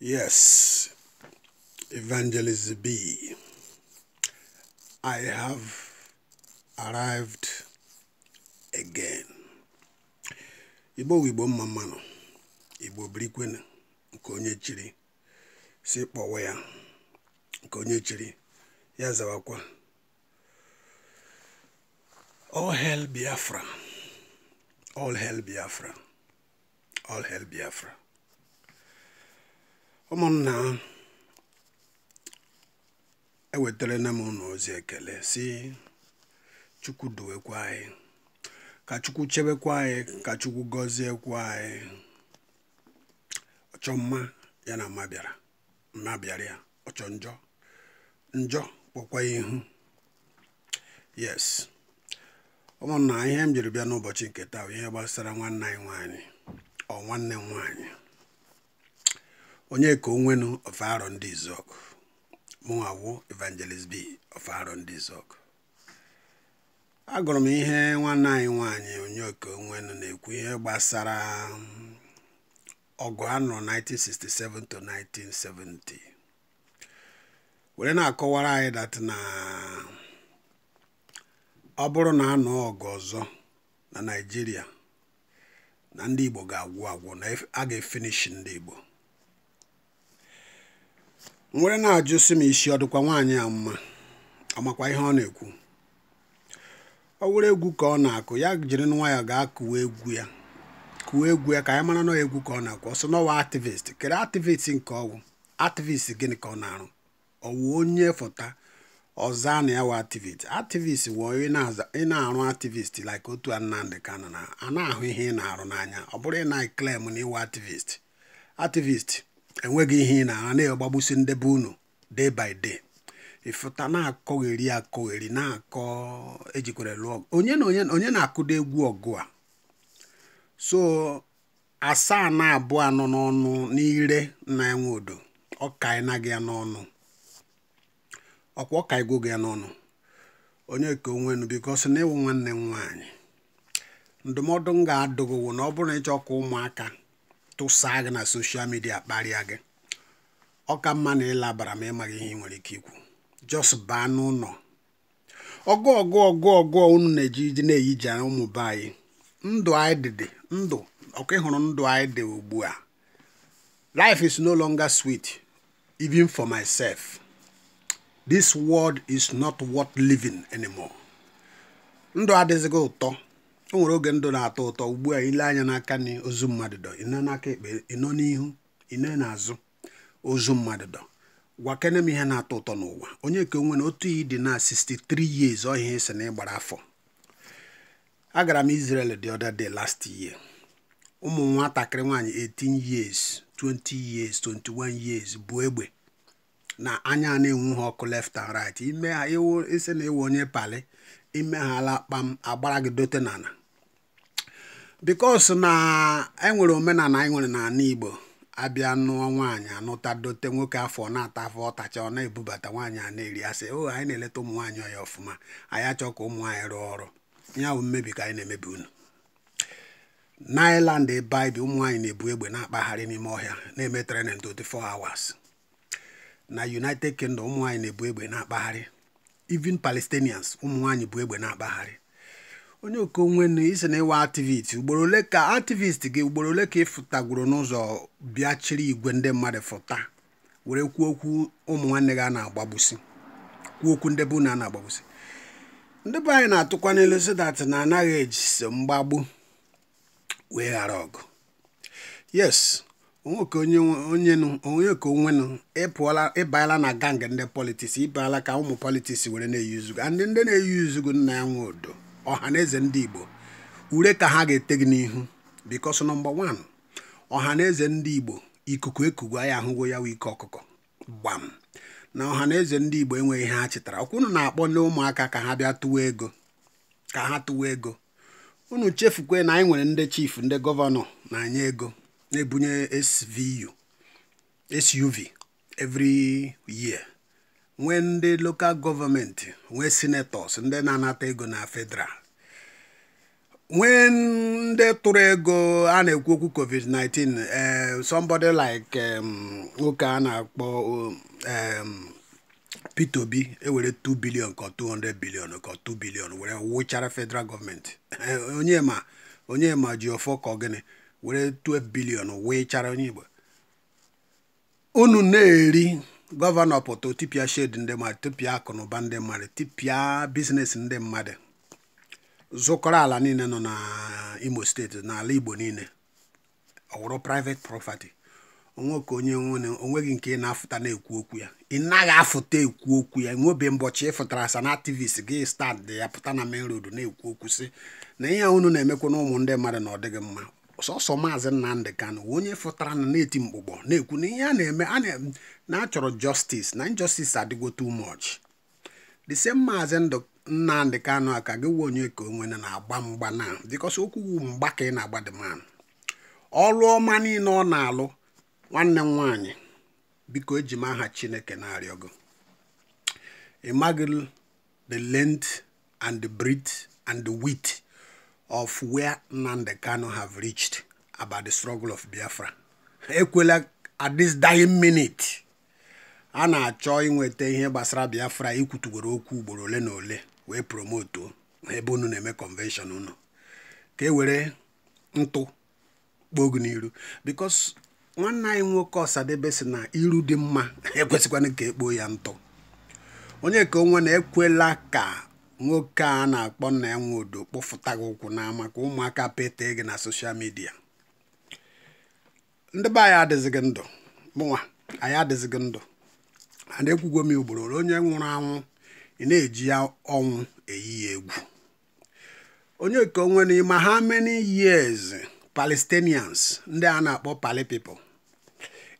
Yes, Evangelist B. I have arrived again. Igbo Igbo mma Igbo birikwenu nke onye chiri si kpọwa ya nke onye chiri ya zawakwa all hell Biafra all hell Biafra all hell Biafra ụmụnna ewetara na m ụlọ ozi ekele si chukwu duwekwa anyị ka chukwu chebekwa anyị ka chukwu gọziekwa anyị ọchọ mma ya na mma bịara mma bịara ya ọchọ njọ njọ kpọkwa ihu yes ụmụnna ihe m jiri bịa n'ụbọchị nke taa ihe gbasara nwanne anyị nwanyị ọ nwanne m nwaanyị onye ka onwenu ọfaro ndị izok mụnwawo evangelist b ọfaro ndị izok agụrụ m ihe nwanne anyị nwanyị onye ka onwenu na-ekwu ihe gbasara ọgụ anọ 1967 to 1970 were na-akọwara anyị dat na ọ bụrụ na anụ ọgụ ọzọ na naijiria na ndị igbo ga-agwụ agwụ na a ga-efinishi ndị igbo nwere na-ajụ sị m isi ọ dịkwa nwaanyị a mma ọmakwa ihe ọ na-ekwu ọ were egwu ka ọ na-akụ ya jiri nwa ya gaa kụwa egwu ya kụwa egwu ya ka anyị mara nọ egwu ka ọ na-akụ ọsọ n'ọwa ativist kere ativist nke ọwụ activist gịnị ka ọ na-arụ ọwụ onye fọta ọza na ya wa activist activist wụ ị na-arụ activist like otu Nnamdi Kanu a na-ahụ ihe ị na-arụ n'anya ọ bụrụ ị na-eklem na ịwa activist ativist. enweghị ihe ị na-ara na-agbagbusi ndebe unu day by day ịfụta na-akọgheri akọgheri na-akọ ejikwere lụọ onye na onye na-akụda egwu ọgụ a so asaa na abụọ anọ n'ọnụ n'ire na enwe odo ọkaina gị ya n'ọnụ ọkwa ọkaigwo gị n'ọnụ onye ka onwenu bikos na ịwụ nwanne m nwaanyị ndụmọdụ m ga-adụgị na ọ bụrụ na ịchọ ka ụmụaka tụsaa gị na soshal midia kparịa gị ọ ka mma na ịlabara ma ịmaghị ihe ị nwere ike ikwu jos baa n'ụlọ ọgụ ọgụ ọgụ ọgụ unu na-eji na-eyiji ụmụ be anyị ndụ anyị dị ndụ ọkụ ịhụrụ ndụ anyị dị ugbu a life is no longer sweet even for myself this world is not worth living anymore ndụ adịghịzị ụtọ o nwere oge ndụ na-atọ ụtọ ugbu a ile anya n'aka na ozu mmadụ dọ ịnọ n'aka ekpe nọ n'ihu ịnọ n'azụ ozu mmadụ dọ gwakene m ihe na-atọ ụtọ n'ụwa onye ka onwe na otu iyi dị na 63 years ọhịa esi na ịgbara afọ agara m Israel the other day last year ụmụ nwatakịrị nwaanyị 18 years 20 years 21 years bụ egbe na anya na enwe ha ọkụ left and right ime ha ewu ise na ewu onye pali ime ha ala kpam agbara gị dote n'ala bikos na enwere omenala anyị e nwere n'ala Igbo abịa nụọ nwaanyị anụta dote nwoke afọ na-ata afọ ọtacha ọ na-ebubata nwaanyị a na-eri asị o oh, anyị na-eleta ụmụ nwaanyị ọya ọfụma anyị achọ ka ụmụ nwaanyị rụọ ọrụ ya bụ mmebi ka anyị na-emebi unu nailand ebe ụmụ nwaanyị na-ebu egbe na-akpagharị n'ime ọhịa na-eme training 24 hours na united kingdom ụmụ nwaanyị na-ebu egbe na-akpagharị even palestinians ụmụ nwaanyị bu egbe na-akpagharị onye okonwe na isi na ịwa ativist ugboro ole ka ativist gị ugboro ole ka ị fụtagwuru n'ụzọ bịachiri igwe ndị mmadụ fụta were kwuo okwu ụmụ nwanne gị a na-agbagbusi kwuo okwu ndị bụ na na-agbagbusi ndị be anyị na-atụkwa n'elu sidat na anaghị eji mgbagbu wee ghara ọgụ yes onye ka onwenụ ịpụọla ịbanyela na gang ndị politiks ịbala ka ụmụ politiks were na-eyuzu gị ndị na-eyuzu gị nna ya nwe odo ọha na eze ndị igbo ure ka ha ga-ete gị n'ihu because nọmba wan ọha na eze ndị igbo ikuku ekugo ya ahụgo ya ike ọkụkọ gbam na ọha na eze ndị igbo enweghị ihe ha chetara ọkwa na-akpọ ndị ụmụaka ka ha bịa tụwa ego ka ha tụwa ego unu chefukwe na anyị nwere ndị chief ndị gọvanọ na anya ego na-ebunye SVU SUV every year nwee ndị lokal gọọmenti nwee sinetọs ndị na-anata ego na federal nwee ndị tụrụ ego a na-ekwu okwu covid-19 eh, somebody like nwoke a na-akpọ Peter Obi ewere 2 billion ka 200 billion ka 2 billion were wụchara federal gọọmenti eh, onye ma onye ma ji ọfọ ka gịnị were 12 billion wụchara onye Igbo unu na-eri gọvanọ pụta tipịa shed ndị mmadụ tipịa akụnụba ndị mmadụ tipịa biznes ndị mmadụ zụkọrọ ala niile nọ na imo steeti n'ala igbo niile ọ wụrụ private property onweke onye nwere onweghị nke ị na-afụta na-ekwu okwu ya ị naghị afụta ekwu okwu ya nwebe mbọchị ịfụtara sa na activist gị stand ya pụta na main road na-ekwu okwu sị na ihe unu na-emekwa na ụmụ ndị mmadụ na ọ dịghị mma sọsọ maazị Nnamdị Kanụ onye fụtara na na-eti na-ekwu na ihe a na-eme a na-eme na a justice na injustice adịgo too much the same maazị Nnamdị Kanụ ka gị wuo onye ka onwe na-agba mgba na because okwu wu mgba ka ị na-agba the man ọrụ ọma niile ọ na-alụ nwanne m nwaanyị biko eji m aha Chineke na-arịọ gị imagine the length and the breadth and the width of where Nnamdị Kanụ have reached about the struggle of Biafra ekwela at this dying minute a na-achọ inweta ihe gbasara Biafra ikwutugoro okwu ugboro ole na ole wee promoto ebe unu na-eme convention unu ka e were ntụ kpogu n'iru because nwanne anyị nwoke Ọsadebe si na iru dị mma ekwesịkwana ka ekpoo ya ntụ onye ka onwe na-ekwela ka nwoke a na-akpọ nna ya nwe odo kpọfụta gị ụkwụ n'ama ka ụmụaka pete gị na soshal midia ndị be anyị adịzighị ndụ mụnwa anyị adịzighị ndụ and ekwugo ugboro onye nwụrụ anwụ ị na-eji ọnwụ eyi egwu onye nke onwe n'ime ha many years palestinians ndị a na-akpọ pali pipo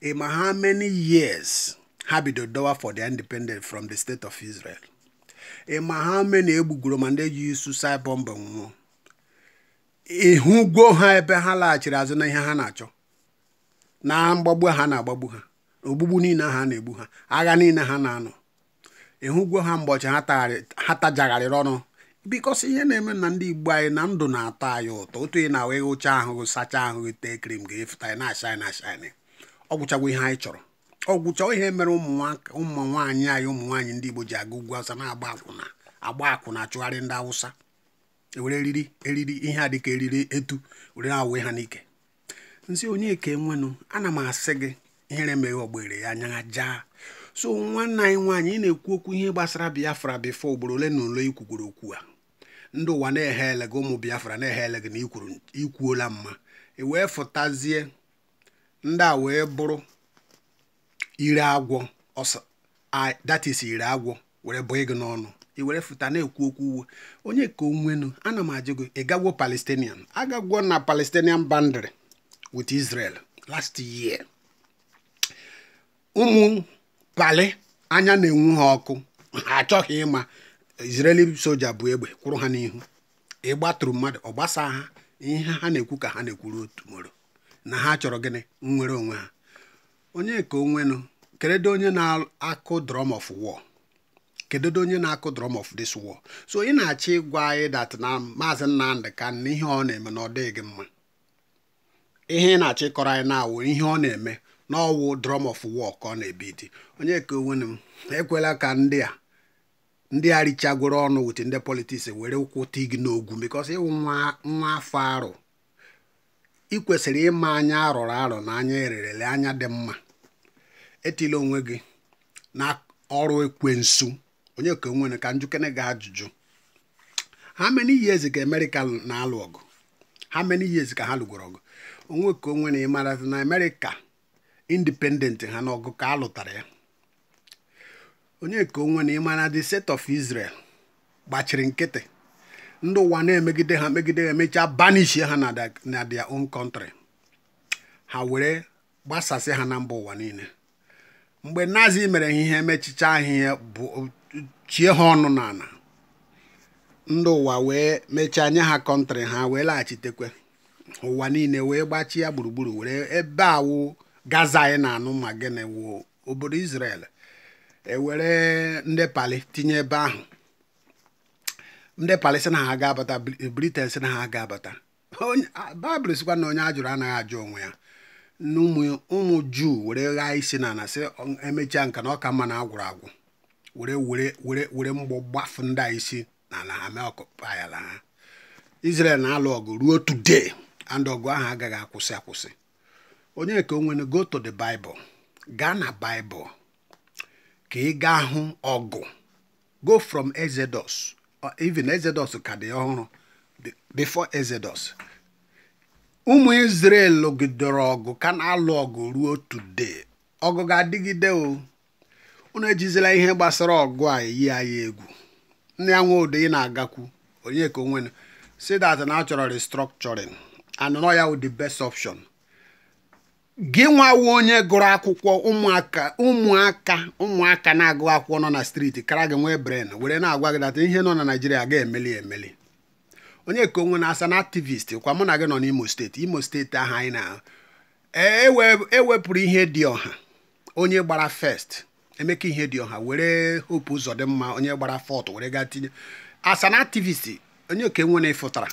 ima ha many years ha bido dọwa for the independence from the state of israel ịma ha many egbugoro ma ndị ji suicide bomb nwụọ ha ebe ha laghachiri azụ na ihe ha na-achọ na mgbagbu ha na-agbagbu ha ogbugbu niile ha na-egbu ha agha niile ha na-anọ ịhụgwo ha mgbọchị ha tajagharịrị ọnụ bikọsi ihe na-eme na ndị igbo anyị na ndụ na-atọ anyị ụtọ otu ị na-awụ ịhụcha ahụ sachaa ahụ tee krim ga-efụta anyị na-ashị na-ashị ọ ihe anyị chọrọ ọ gwụchọ ihe mere ụmụ nwaanyị anyị ụmụ nwaanyị ndị igbo ji aga ugwu awụsa na-agba akwụna agba akwụna achụgharị ndị awụsa ewere eriri eriri ihe a dịka eriri etu were awee ha n'ike nzi onye ka enwenụ ana m asị gị ihere meghe ogbere ya anya jaa so nwanne anyị nwaanyị ị na-ekwu okwu ihe gbasara biafra bifo ugboro ole na ole ikwukwuru okwu a ndị ụwa na eghe ele gị ụmụ biafra na-ehe ele gị na ikwuola mma e wee fụtazie ndị a wee bụrụ ire agwọ datis ire agwọ were bụ gị n'ọnụ i were fụta na-ekwu okwu uwe onye ka onwenu ana m ajụ gị ịgagwo palestinian agagwo na palestinian bandry with israel last year. ụmụ pali anya na-enwu ha ọkụ ha achọghị ịma Israeli soja bụ egbe kwụrụ ha n'ihu ịgbatụrụ mmadụ ọ gbasa ha ihe ha na-ekwu ka ha na-ekwuru otu moro na ha chọrọ gịnị nnwere onwe ha onye ka onwenụ kedu onye na-akụ drum of war kedu onye na-akụ drum of this war so ị na-achọ ịgwa anyị dat na maazị Nnamdị Kanụ ihe ọ na-eme na ọ dịghị gị mma ihe ị na-achọ ịkọrọ anyị na-awụ ihe ọ na-eme n'ọwụ drum of war ka ọ na-ebidi ebi onye ka onwenu m ekwela ka ndị a ndị a richagoro ọnụ wit ndị politiks were ụkwụ tig n'ogwu because ịwụ nwa afọ arụ ị kwesịrị ịma anya arụrụ arụ na anya ererele anya dị mma etila onwe gị na ọrụ ekwensu onye ka nwere ka njukene gị ajụjụ how many years ka amerika na-alụ ọgụ how many years ka ha lụgoro ọgụ onwe ka onwe na ịmara na amerika. independent ha n'ọgụ ka a lụtara ya onye ka onwe na ịmana the state of Israel gbachiri nkịtị ndị ụwa na-emegide ha megide ha emechaa banish ha na their own country ha were gbasasị ha na mba ụwa niile mgbe nazi mere ha ihe mechicha ahịhịa bụ chie ha ọnụ n'ala ndị ụwa wee mechaa nye ha kọntrị ha wee laghachitekwe ụwa niile wee gbachie ya gburugburu were ebe awụ gaza anyị na-anụ ma gịnị wụ obodo Israel ewere ndị pali tinye ebe ahụ ndị pali na ha ga-abata Britain sị na ha ga-abata baịbụl sikwa na onye ajụrụ anaghị ajụ onwe ya ụmụ juu were ghaa isi na ana sị emechaa nka na ọka mma na agwụrụ agwụ were were were mgbọ gbafụ ndị a isi na ala ha mee ha Israel na-alụ ọgụ ruo today and ọgụ ahụ agaghị akwụsị akwụsị onye nke onwe go to the bible gaa na bible ka ị gaa hụ ọgụ go from exodus even exodus ka dị ọhụrụ before exodus ụmụ israel lụgidere ọgụ ka na-alụ ọgụ ruo today ọgụ ga-adịgide o unu ejizila ihe gbasara ọgụ a eyi anyị egwu nne ya nwodo ị na-agakwu onye ka onwenu si that na achọrọ restructuring and ya the best option gị nwawo onye gụrụ akwụkwọ ụmụaka ụmụaka ụmụaka na-agụ akwụkwọ nọ na striti kara gị nwee bren were na-agwa gị data ihe nọ na naijiria ga-emeli emeli onye ka onwe na-asa na aktivist kwa mụ na gị nọ n'imo steeti imo steeti ahụ anyị na ewepụrụ e e ihe dị ọha onye gbara first emeka ihe dị ọha were hope ụzọ dị mma onye gbara fọt were gaa tinye asa na aktivist onye ka enwe na ịfụtara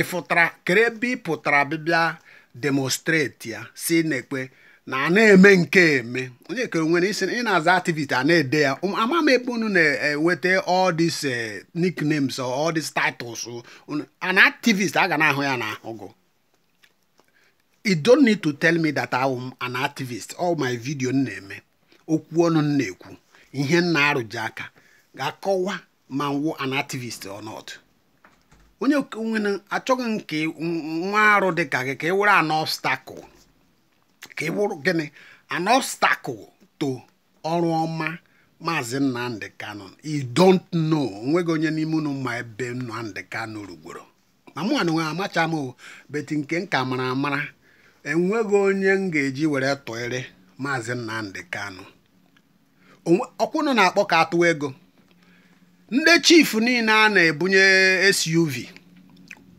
ịfụtara kere ebe ị pụtara bịbịa demonstrate ya si na-ekpe na na-eme nke eme onye kere nwere isi ị na-aza a na-ede ya um, ama m na-enweta all these eh, nicknames or all these titles an activist a na-ahụ ya na ahụgụ you don't need to tell me that I'm an activist all my video m na-eme okwu ọnụ m na-ekwu ihe m na-arụji aka ga-akọwa ma nwụ an activist or not onye okenwe achọghị nke nwa arụ dị ka gị ka ị wụrụ an ka ị wụrụ gịnị an obstacle to ọrụ ọma maazị Nnamdi Kanu you don't know onweghị onye n'ime unu ma ebe Nnamdi Kanu rugboro ma mụ anụ amacha m o beti nke nka mara amara enweghị onye m ga-eji were tụịrị maazị Nnamdi Kano ọkwụnụ na-akpọ ka atụwa ego ndị chief niile a na-ebunye suv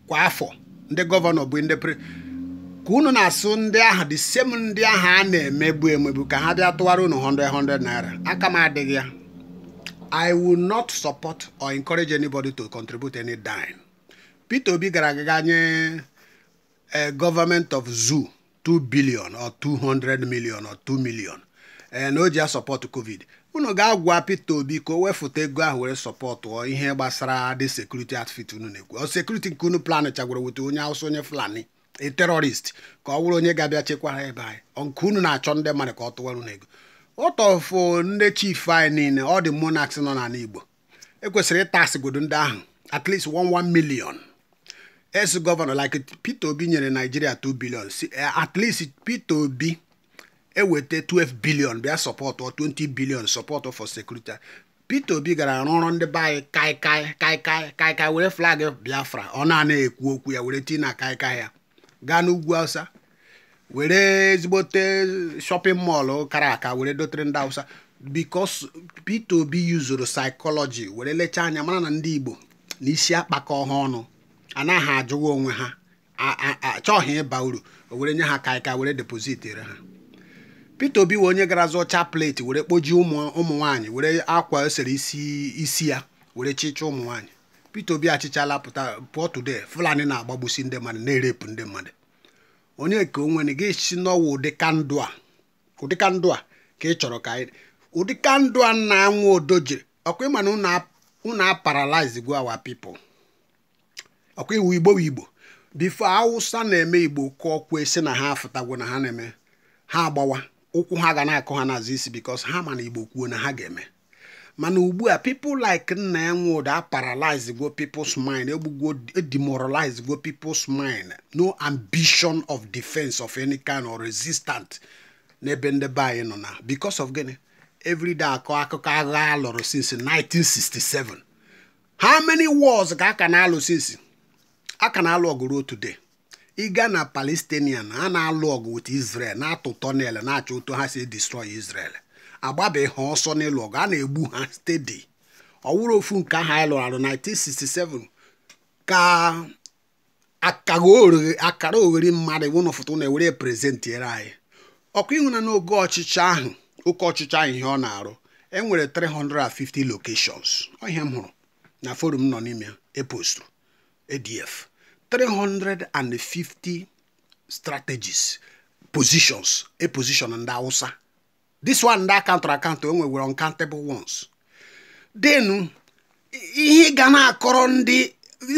kwa afọ ndị gọvanọ bụ ndị pre ka unu na-asụ ndị ahụ dị sem ndị ahụ a na-emegbu emegbu ka ha bịa tụwara unu 100 naira aka m adịghị ya i will not support or encourage anybody to contribute any dime peter obi gara aga nye eh, government of zoo 2 billion or 200 million or 2 million eh, na o ji ya sọpọtụ covid unu ga-agwa Peter Obi ka o wefụta ego ahụ were sọpọtụọ ihe gbasara dị sekuriti atfit unu na-ekwu sekuriti nke unu plan chagwara weta onye awụsa onye Fulani e terọrist ka ọ bụrụ onye ga-abịa chekwara ebe anyị nke unu na-achọ ndị mmadụ ka ọ tụwara unu ego ụtọfụ uh, ndị chief anyị niile ọ dị monaks nọ n'ala Igbo ekwesịrị ịtasịgodo ndị ahụ at least 11 million es gọvanọ like Peter Obi nyere Naijiria 2 billion uh, at least Peter Obi eweta 12 billion bịa sọpọtụ 20 billion sọpọtụ for security Peter Obi gara arụ ọrụ ndị be anyị kaikai kaikai kaikai were flag Biafra ọ naanị ekwu okwu ya were na kaikai ya gaa n'ugwu awụsa were ezigbote shopping mọlụ kara aka were dotere ndị awụsa because Peter Obi yuzuru psychology were lechaa anya mara na ndị Igbo na isi akpakọ ha ọnụ anaghị ajụwa onwe ha achọghị ịba uru o were nye ha kaịka were depozit ha Peter Obi wee onye gara zụọ chaplet were kpoji ụmụ ụmụ nwanyị were akwa esere isi isi ya were chịcha ụmụ nwanyị Peter Obi achịchala pụta pụọ today Fulani na-agbagbusi ndị mmadụ na-erepụ ndị mmadụ onye ka o nwere gị si n'ọwa ụdị kandụ a ụdị kandụ a ka ị chọrọ ka anyị ụdị kandụ a na-anwụ odo jiri ọkwa ịma na unu aparalize go our people ọkwa iwu igbo igbo bifo awụsa na-eme igbo kụọ kwe si na ha afụtagwo na ha na-eme ha agbawa ụkwụ ha ga na-akụ ha n'azụ isi bikos ha ma na igbo kwuo na ha ga-eme mana ugbu a like nna ya nwụda a paralyze go people's mind egbugwo e demoralize go pipo's mind no ambition of defense of any kind or resistant n'ebe ndebe anyị nọ na because of gịnị everyday akọ akụkọ agha alụrụ since 1967 how many wars ka aka na-alụ since aka na-alụ today ịga na palestinian a na-alụ ọgụ with israel na-atụ tọnel na-achọ ụtọ ha si destroy israel agbabeghị ha ọsọ n'ịlụ ọgụ a na-egbu ha stedi ọwụrụ ofu nke ahụ anyị arụ 1967 ka akara oghere mmadụ wụna foto na-ewere prezentiere anyị ọkụ ịhụna n'oge ọchịchị ahụ oke ọchịchị ahụ ihe ọ na-arụ e nwere 350 locations ọhịa m hụrụ na forum nọ n'ime epostru adf e 350 strategies positions a position ndị awụsa this one ndị akaụntụrụ akaụntụ enwewere uncountable ones then ihe ga na-akọrọ ndị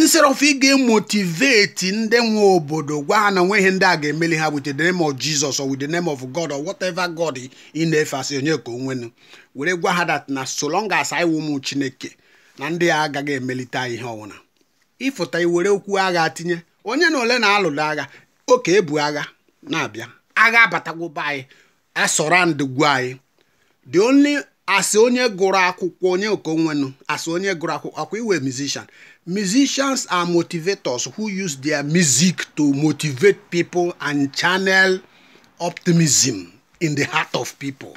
instead of ị ga-emotivate ndị nwe obodo gwa ha na nweghị ndị a ga-emeli ha wit the name of Jesus or with the name of God or whatever God ị na-efe asị onye ka onwenu were gwa ha dat na so long as i Chineke na ndị a agaghị emelite ihe ọwụna ịfụta iwere okwu agha tinye onye na ole na-alụrụ agha oke ebu agha na-abịa agha abatagwoba anyị asorandgwu anyị the onye asị onye gụrụ akwụkwọ onye okonwenu asị onye gụrụ akwụkwọ akwa iwe musician musicians are motivators who use their music to motivate people and channel optimism in the heart of people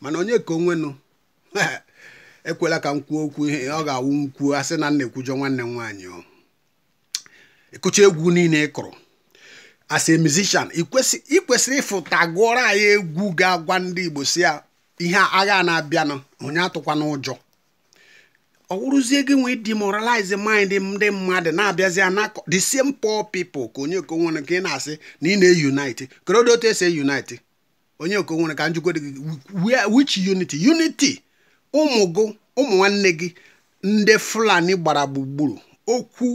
mana onye ka onwenu ekwela ka m kwuo okwu ihe ọ ga-awụ m kwuo asị na nna ekwujọ nwanne m nwaanyị o ịkụcha egwu niile ị kụrụ as a musician ị kwesịrị ịfụta gụọrọ anyị egwu ga-agwa ndị Igbo si ya ihe agha na-abịanụ onye atụkwana ụjọ ọ wụrụzie gị nwee demoralize mind ndị mmadụ na-abịazi na the same poor people ka onye okonwere ka ị na-asị na ị na-eunite kedu otu esi eunite onye okonwere ka njikwa which unity unity ụmụ gụ ụmụ nwanne gị ndị fulani gbara gburugburu okwu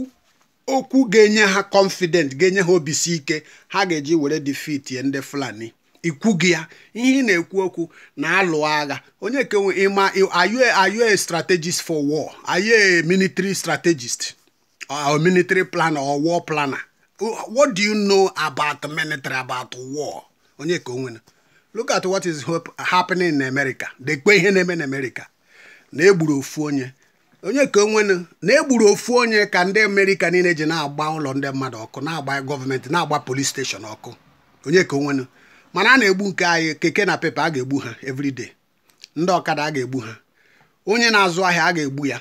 okwu ga-enye ha confident ga-enye ha obisi ike ha ga-eji were ya ndị fulani ikwu gị ya ihe ị na-ekwu okwu na-alụ agha onye kenwe ịma are you a strategist for war are you a military strategist or military planner or war planner what do you know about military about war onye ka onwe look at what is happening in America dekpe ihe na-eme na amerika na-egburu ofu onye onye ka onwenu na-egburu ofu onye ka ndị amerika niile ji na-agba ụlọ ndị mmadụ ọkụ na-agba gọọmenti na-agba polis steshọn ọkụ onye ka onwenu mana a na-egbu nke anyị keke na pepa a ga-egbu ha evriday ndị ọkada a ga-egbu ha onye na-azụ ahịa a ga-egbu ya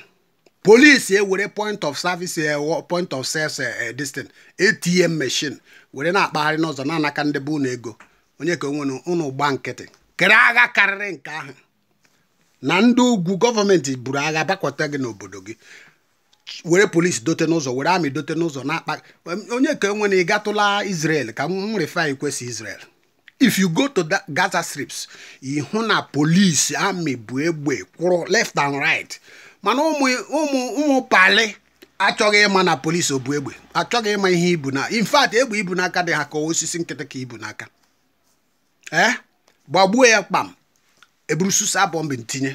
polisi ewere point of service e, point of sels distant e, e, ATM machine were na-akpagharị n'ụzọ na-anaka ndị bụ unu ego onye ka onwere ụnụ gba nkịtị kere agha karịrị nke ahụ na ndị ugwu gọọmenti buru agha bakwata gị n'obodo gị were polisi dote n'ụzọ were amị dote n'ụzọ na-akpa onye ka enwe na ị gatụla ka m refi kwesị Israel if you go to Gaza strips ịhụ na polisi amị bụ egbe kwụrụ left and right mana ụmụ ụmụ ụmụ pali achọghị ịma na polisi ọ egbe achọghị ịma ihe ibu na in fact egbe ibu n'aka dị ha ka osisi nkịtị ka ibu n'aka ee eh? gbagbuo ya kpam eburu susa bọmbụ ntinye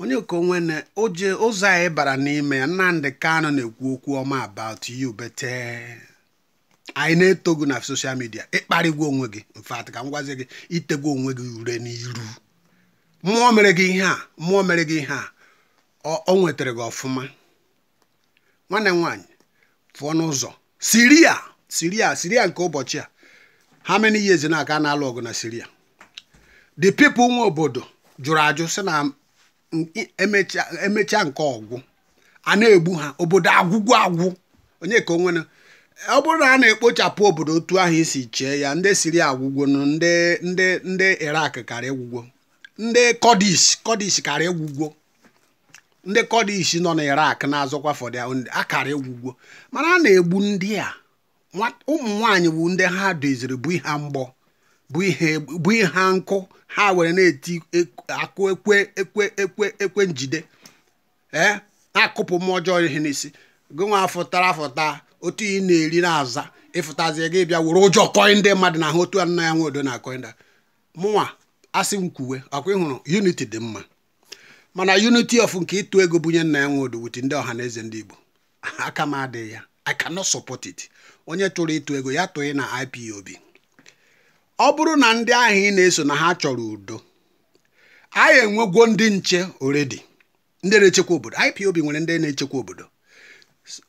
onye na oje ụzọ anyị bara n'ime ya Nnamdi Kanu na-ekwu okwu ọma about you bete anyị na-eto gị na soshal midia ịkparịgwa onwe gị mfat ka m gwazi gị itegwu onwe gị ure n'iru mmụọ mere gị ihe a mmụọ mere gị ihe a o nwetara gị ọfụma nwanne m nwaanyị pụọ n'ụzọ siria siria siria nke ụbọchị a how many years na aka na-alụ ọgụ na siria the people nwe obodo jụrụ ajụ sị na emechaa nke ọgwụ a na-egbu ha obodo agwụgwụ agwụ onye ka onwere ọ bụrụ na a na-ekpochapụ obodo otu ahụ isi chee ya ndị Siria agwụgwo ndị ndị kara egwugwo ndị Kurdish Kurdish kara egwugwo ndị Kurdish nọ na Iraq na-azọkwa fọdụ akara egwugwo mana a na-egbu ndị a ụmụ nwaanyị bụ ndị ha doziri bụ ihe mgbọ bụ ihe nkụ ha were na-eti akụ ekwe ekwe ekwe ekwe njide ee na-akụpụ mmụọ ọjọọ ihe n'isi gị nwa fụtara afụta otu ị na-eri na-aza ịfụtazie gị bịa were ụjọ kọị ndị mmadụ na ahụ otu a nna ya nwe odo na koinda mụnwa asị m ọkwa ịhụrụ unity dị mma mana unity of nke ịtụ ego bunye nna ya nwe odo wuti ndị ọha na eze ndị Igbo aka m adịghị ya I cannot support it onye tụrụ ịtụ ego ya tụghị na IPOB ọ bụrụ na ndị ahụ ị na-eso na ha chọrọ udo anyị enwegwo ndị nche oredi ndị na-echekwa obodo IPOB nwere ndị na-echekwa obodo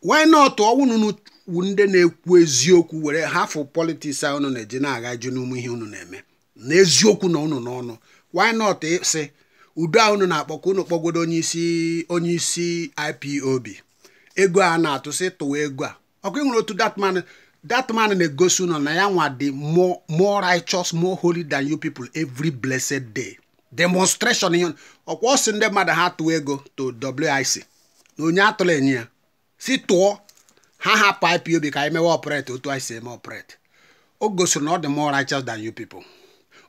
wee nọtụ ọnwụnụ ndị na-ekwu eziokwu were hafụ politiks a na-eji na-agaju n'ụmụ ihe unu na-eme na eziokwu na unu n'ọnụ why not sị udo a unu na-akpọ ka unu kpọgodo onye isi onye isi IPOB ego a na-atụ sị tụwa ego a ọkụ ị nwere otu datman man man na-egosi ụnọ na ya nwa dị more more righteous more holy than you people every blessed day demonstration ihe ọkwa ọ sị ndị mmadụ ha tụọ ego to WIC na onye atụla enye ya si tụọ ha hapụ IPOB ka anyị mewe operate otu anyị si eme operate o gosiri na ọ dị more righteous than you people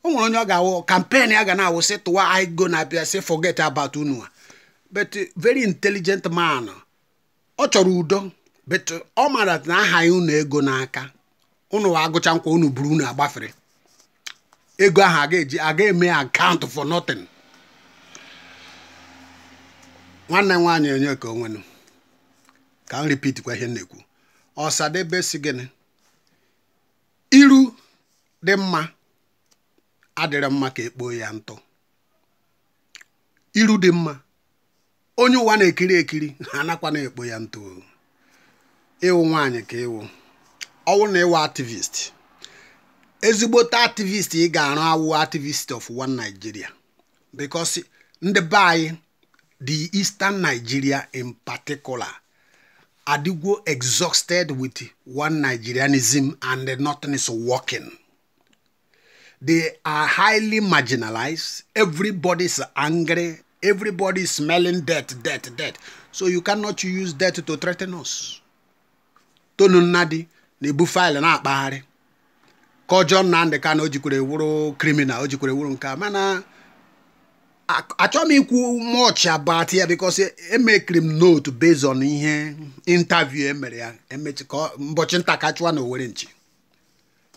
o nwere onye ọ ga-awụ kampen ya ga na-awụ sị tụwa anyị na-abịa sị forget about unu but very intelligent man ọ chọrọ udo bet ọ mara na ahaghị unu ego n'aka unu agụcha nkwa unu buru unu agbafere ego ahụ aga-eji aga eme akaụntụ for nothing nwanne m nwaanyị onye ka onwenu ka m kwa ihe na-ekwu ọsadebe si gịnị iru dị mma adịrị mma ka ekpoo ya ntụ iru dị mma onye ụwa na-ekiri ekiri ha anakwa na-ekpo ya ntụ ịwụ nwaanyị ka ịwụ ọwụ na ịwụ activist ezigbote activist ị ga-arụ awụ activist of one Nigeria because ndị be anyị the Eastern Nigeria in particular adịgwo exhausted with one Nigerianism and nothing is working. they are highly marginalized. Everybody is angry. Everybody is smelling death, death, death. So you cannot use death to threaten us. tonu nnadi na-ebu faịlụ na-akpagharị ka ọjọọ ka na o jikwere wụrụ kriminal o jikwere wụrụ nke a mana achọghị m ikwu much about ya because emekiri m note based on ihe interview emere ya emechi ka mbọchị nta ka chụwa na Owere nchi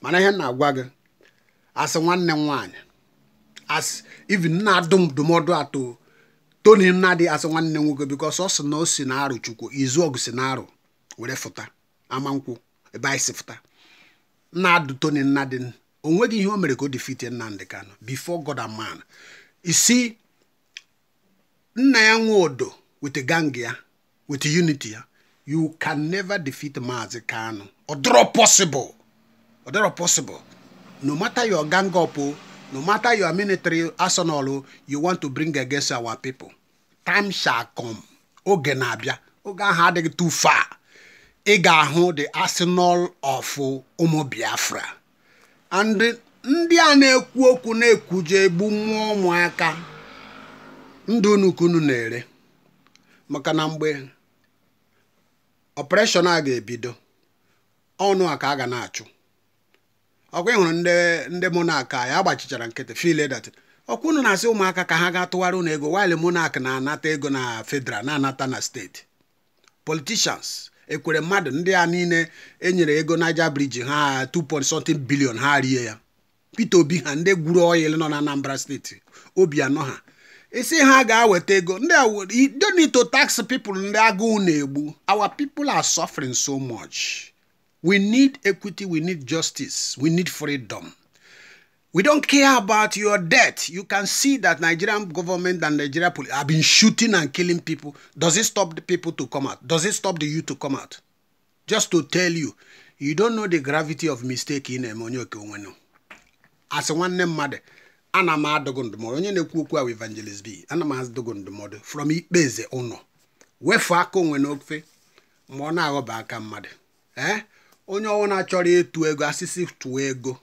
mana ihe na-agwa gị asị nwanne nwanyị as even na dum ndụmọdụ atọ toni Nnadi asị nwanne nwoke because ọ sị na o si na arụ Chukwu izu ọgụ si na arụ were fụta amankwụ ebe anyị sifụta nnadụ tony nnadị o nweghị ihe o mere ka o defite nnamdị kanụ before god and man isi nna ya nwe odo with gang ya with unity ya you can never defeat maazi ka ọ dịrọ possible ọ possible no matter your gang up no matter your military arsenal you want to bring against our people time shall come oge na-abịa oge ahụ adịghị too far ị ga-ahụ the arsenal of ụmụ Biafra and ndị a na-ekwu okwu na-ekwuje egbu mmụọ ụmụaka ndụ unu na-ere maka na mgbe ọpreshọn a ga-ebido ọnụ a ka a ga na-achụ ọkwa ịhụrụ ndị ndị monak ya agbachichara nkịtị filedat ọkwa unu na-asị ụmụaka ka ha ga-atụgharị unu ego waile monak na-anata ego na federal na-anata na steeti politishans ekwere mmadụ ndị a niile enyere ego naija briji ha $2.7 bilion ha rie ya Peter Obi ha ndị gwuru oyil nọ na Anambra steeti obi anọ ha isi ha ga-aweta ego ndị donito tax people ndị agụụ na-egbu our people are suffering so much we need equity we need justice we need freedom We don't care about your debt. You can see that Nigerian government and Nigeria police have been shooting and killing people. Does it stop the people to come out? Does it stop the youth to come out? Just to tell you, you don't know the gravity of mistake in Emonyoke Onwenu. As one name mother, ana m ndụmọdụ onye na-ekwu ahụ evangelist b ana m ndụmọdụ from ikpeze ụnọ wefu aka onwe n'ofe ma ọ na aka mmadụ eh? onye ọwụ chori achọrọ ịtụ ego asịsị ego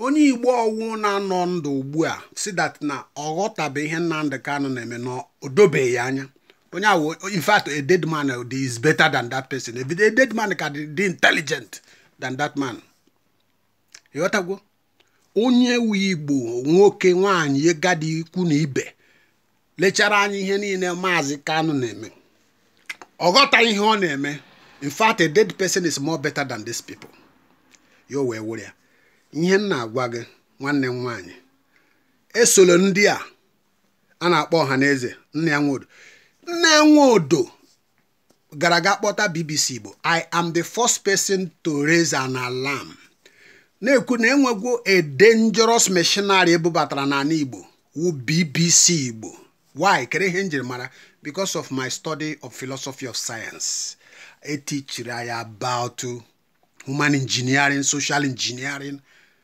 onye igbo ọwụ na-anọ ndụ ugbu a si dat na ọ bụ ihe nnamdị kanụ na-eme na o anya onye ahụ in a dead man is better than that person a dead man ka dị intelligent than that man ịghọtagwo onye wu igbo nwoke nwaanyị gadi ikwu na ibe lechara anyị ihe niile maazị kanụ na-eme ọghọta ihe ọ na-eme infact a dead person is more better than these people yo wee were ya ihe m na-agwa gị nwanne m nwaanyị esolo ndị a a na-akpọ ọha na eze nne ya nwodo nne ya nwodo gara aga kpọta BBC Igbo I am the first person to raise an alarm na-ekwu na enwegwo a dangerous machinery ebubatara n'ala Igbo wu BBC Igbo why kere ihe njirimara mara because of my study of philosophy of science etichiri anyị about human engineering social engineering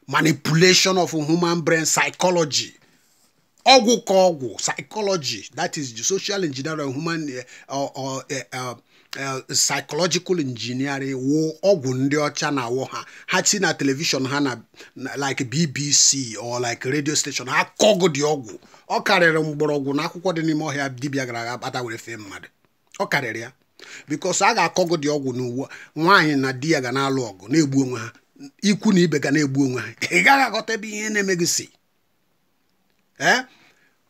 manipulation of human brain psychology ọgwụ ka ọgwụ psychology that is the social engineering human eh, or eh, eh, psychological engineering wụ ọgwụ ndị ọcha na-awụ ha ha si na telivishọn ha na like BBC or like radio station ha kọgụ dị ọgwụ ọ karịrị mgbọrọgwụ na akwụkwọ dị n'ime ọhịa dibịa gara aga kpata were fee mmadụ ọ karịrị ya bikos a ga-akọgụ dị ọgwụ n'uwe nwaanyị na di ya ga na-alụ ọgụ na-egbu onwe ha ikwu na ibe ga na-egbu onwe ha ị gaghị aghọta ebe ihe na-eme gị si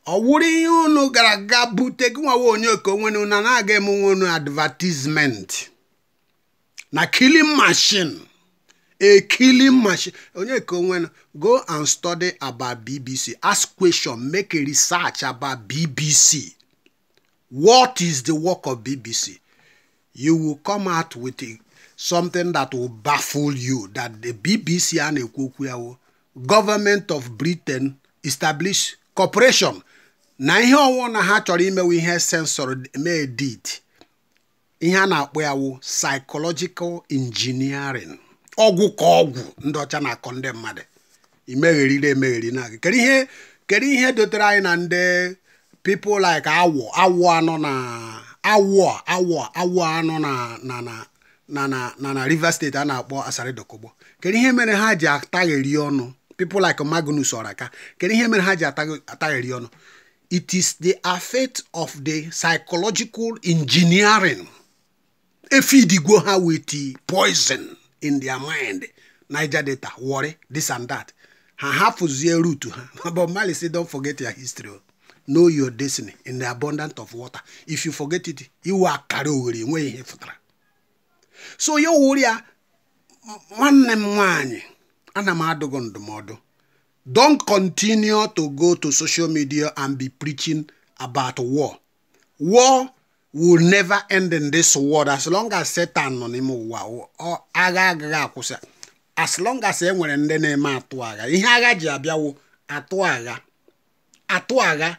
ọ ihe unu gara aga bute gị onye onwe na na-aga emenwe unu advertisement na killing machine a killing machine onye ka onwe go and study about bbc ask question make a research about bbc what is the work of bbc you will come out with a something that will baffle you that the BBC a na-ekwu okwu ya government of Britain establish corporation na ihe ọwụ na ha chọrọ imewe ihe sensor mee ihe a na-akpọ ya wụ psychological engineering ọgwụ ka ọgwụ ndị ọcha na-akọ ndị mmadụ imegherire emegheri na kedu ihe kedu ihe dotere anyị na ndị pipo like awọ awọ anọ na awọ awọ awọ anọ na na na na river state a na-akpọ Asari Dokogbo kedu ihe mere ha ji atagheri ọnụ people like Magnus Oraka kedu ihe mere ha ji atagheri ọnụ it is the effect of the psychological engineering efidigwo ha with poison in their mind Niger data worry this and that ha hapụzie route ha but Mali say don't forget your history know your destiny in the abundance of water if you forget it iwe akara ogheri enweghị ihe fụtara so ya wụrụ ya nwanne m nwanyị ana m gị ndụmọdụ don continue to go to social media and be preaching about war war will never end in this world as long as Satan nọ n'ime ụwa agha agaghị akwụsị as long as e nwere ndị na-eme atụ agha ihe agha ji abịawo atụ agha atụ agha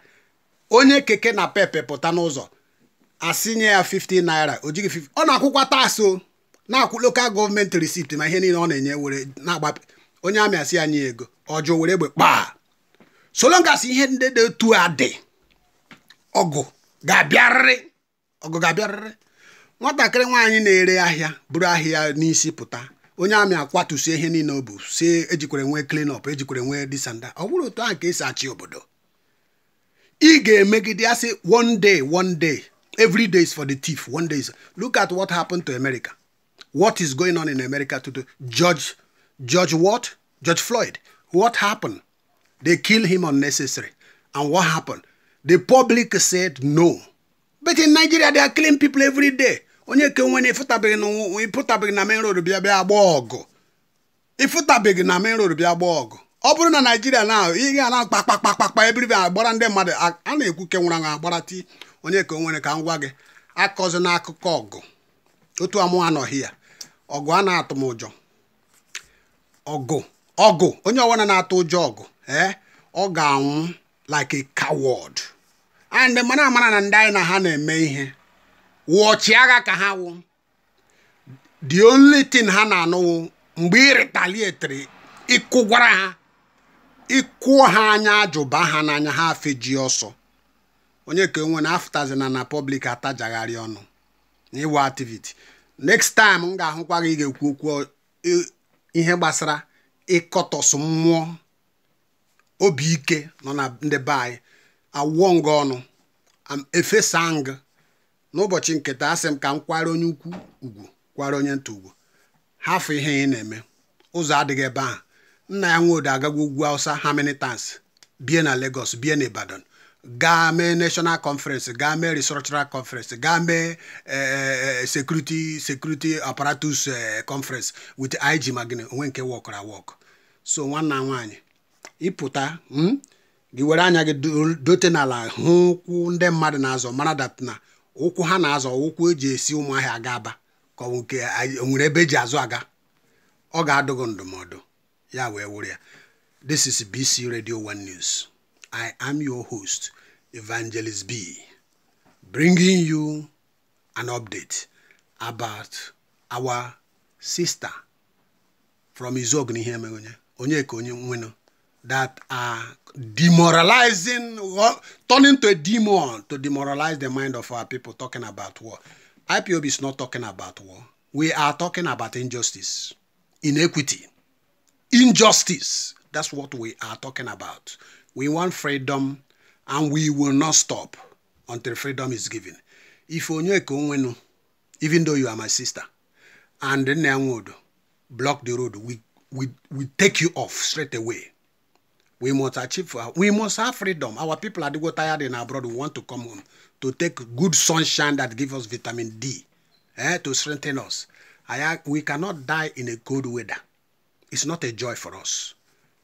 onye keke na pepe pụta n'ụzọ asị nye ya 50 naira o jighị 50 ọ na-akwụkwa taa na-akwụ lokal gọọmenti risipti ma ihe niile ọ na-enye were na agba onye amị asị anyị ego ọjụ were egbe kpaa solongas ihe ndị dị otu a dị ọgụ ga-abịarịrị ọgụ ga-abịarịrị nwatakịrị nwaanyị na-ere ahịa bụrụ ahịa n'isi pụta onye amị akwatusie ihe niile o bụ si ejikwere nwee clean up ejikwere nwee disanda ọ bụrụ otu ahụ ka esi achị obodo ị ga-emegide asị one day one day every day is for the thief one day is look at what happened to America what is going on in America today. Judge, Judge what? Judge Floyd. What happened? They kill him unnecessary. And what happened? The public said no. But in Nigeria, they are killing people every day. onye ke nwere ịfụtabeghị na main road bịa bịa agba ọgụ ịfụtabeghị na main road bịa agba ọgụ ọ bụrụ na naijiria na ị ga na kpakpakpakpakpa ebiribe agbara ndị mmadụ a na-ekwu ke nwere anwụ agbara ti onye ka nwere ka m gwa gị akọzi n'akụkọ ọgụ otu amụ anọghị ya ọgụ a na-atụ m ụjọ ọgụ ọgụ onye ọbụla na-atụ ụjọ ọgụ ee eh? ọ ga-anwụ like a coward and mara amara na ndị anyị na ha na-eme ihe wụ agha ka ha wụ the only thing ha na-anụwụ mgbe ị ịkụ gwara ha ịkụọ ha anya ajụba ha n'anya ha afeji ọsọ onye ka enwe na afụtazina na public atajagharị ọnụ na ịwa next time m ga-ahụkwa gị ga-ekwu okwu ihe gbasara ịkọtọsụ mmụọ obi ike nọ na ndị be anyị awụọ nga ọnụ efesa ng n'ụbọchị nketa asị m ka m kwara onye ukwu ugwu kwara onye nta ugwu hafụ ihe ị na-eme ụzọ adịghị ebe ahụ nna ya nwodo agagwa ugwu awụsa ha tans bie na Lagos bie na Ibadan gaa mee national conference gaa mee restructural conference gaa mee eh, eh, security security apparatus eh, conference with IG magine onwe nke wọkụrụ awọkụ so nwanna nwanyị ịpụta hmm? gị were anya gị dote n'ala hụ ụkwụ ndị mmadụ na-azọ mara dat na ụkwụ ha na-azọ ụkwụ eji esi ụmụahịa aga aba ka ọ nwere ebe eji azụ aga ọ ga adụgụ ndụmọdụ ya wee wụrụ ya this is BC Radio 1 News I am your host, Evangelist B, bringing you an update about our sister from Izogni Onyeka Onyenwenu that are demoralizing, uh, turning to a demon to demoralize the mind of our people talking about war. IPOB is not talking about war. We are talking about injustice, inequity, injustice. That's what we are talking about. We want freedom and we will not stop until freedom is given. If Onyeko even though you are my sister, and would block the road, we, we, we take you off straight away. We must achieve, we must have freedom. Our people are go tired in abroad. We want to come home to take good sunshine that gives us vitamin D eh, to strengthen us. I, we cannot die in a cold weather. It's not a joy for us.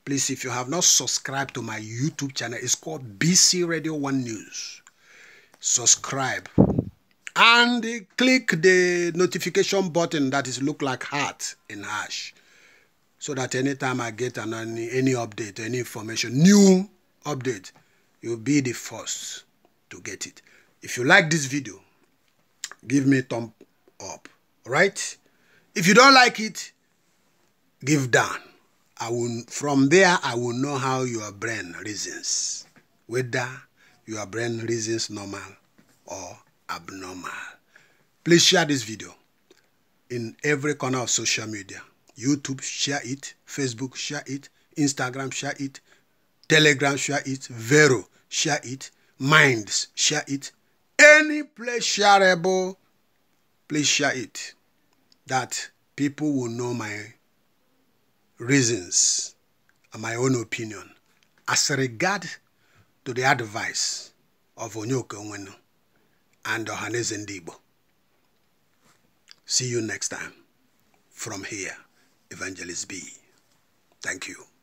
Please, if you have not subscribed to my YouTube channel, it's called BC Radio 1 News. Subscribe. And click the notification button that is look like heart in hash. So that anytime I get an, any, any update, any information, new update, you'll be the first to get it. If you like this video, give me thumb up, right? If you don't like it, give down. I will, from there, I will know how your brain reasons, whether your brain reasons normal or abnormal. Please share this video in every corner of social media. YouTube, share it. Facebook, share it. Instagram, share it. Telegram, share it. Vero, share it. Minds, share it. Any place shareable, please share it. That people will know my reasons and my own opinion as regard to the advice of Onyoke Nwenu and Ohaneze Ndigbo. See you next time from here, Evangelist B. Thank you.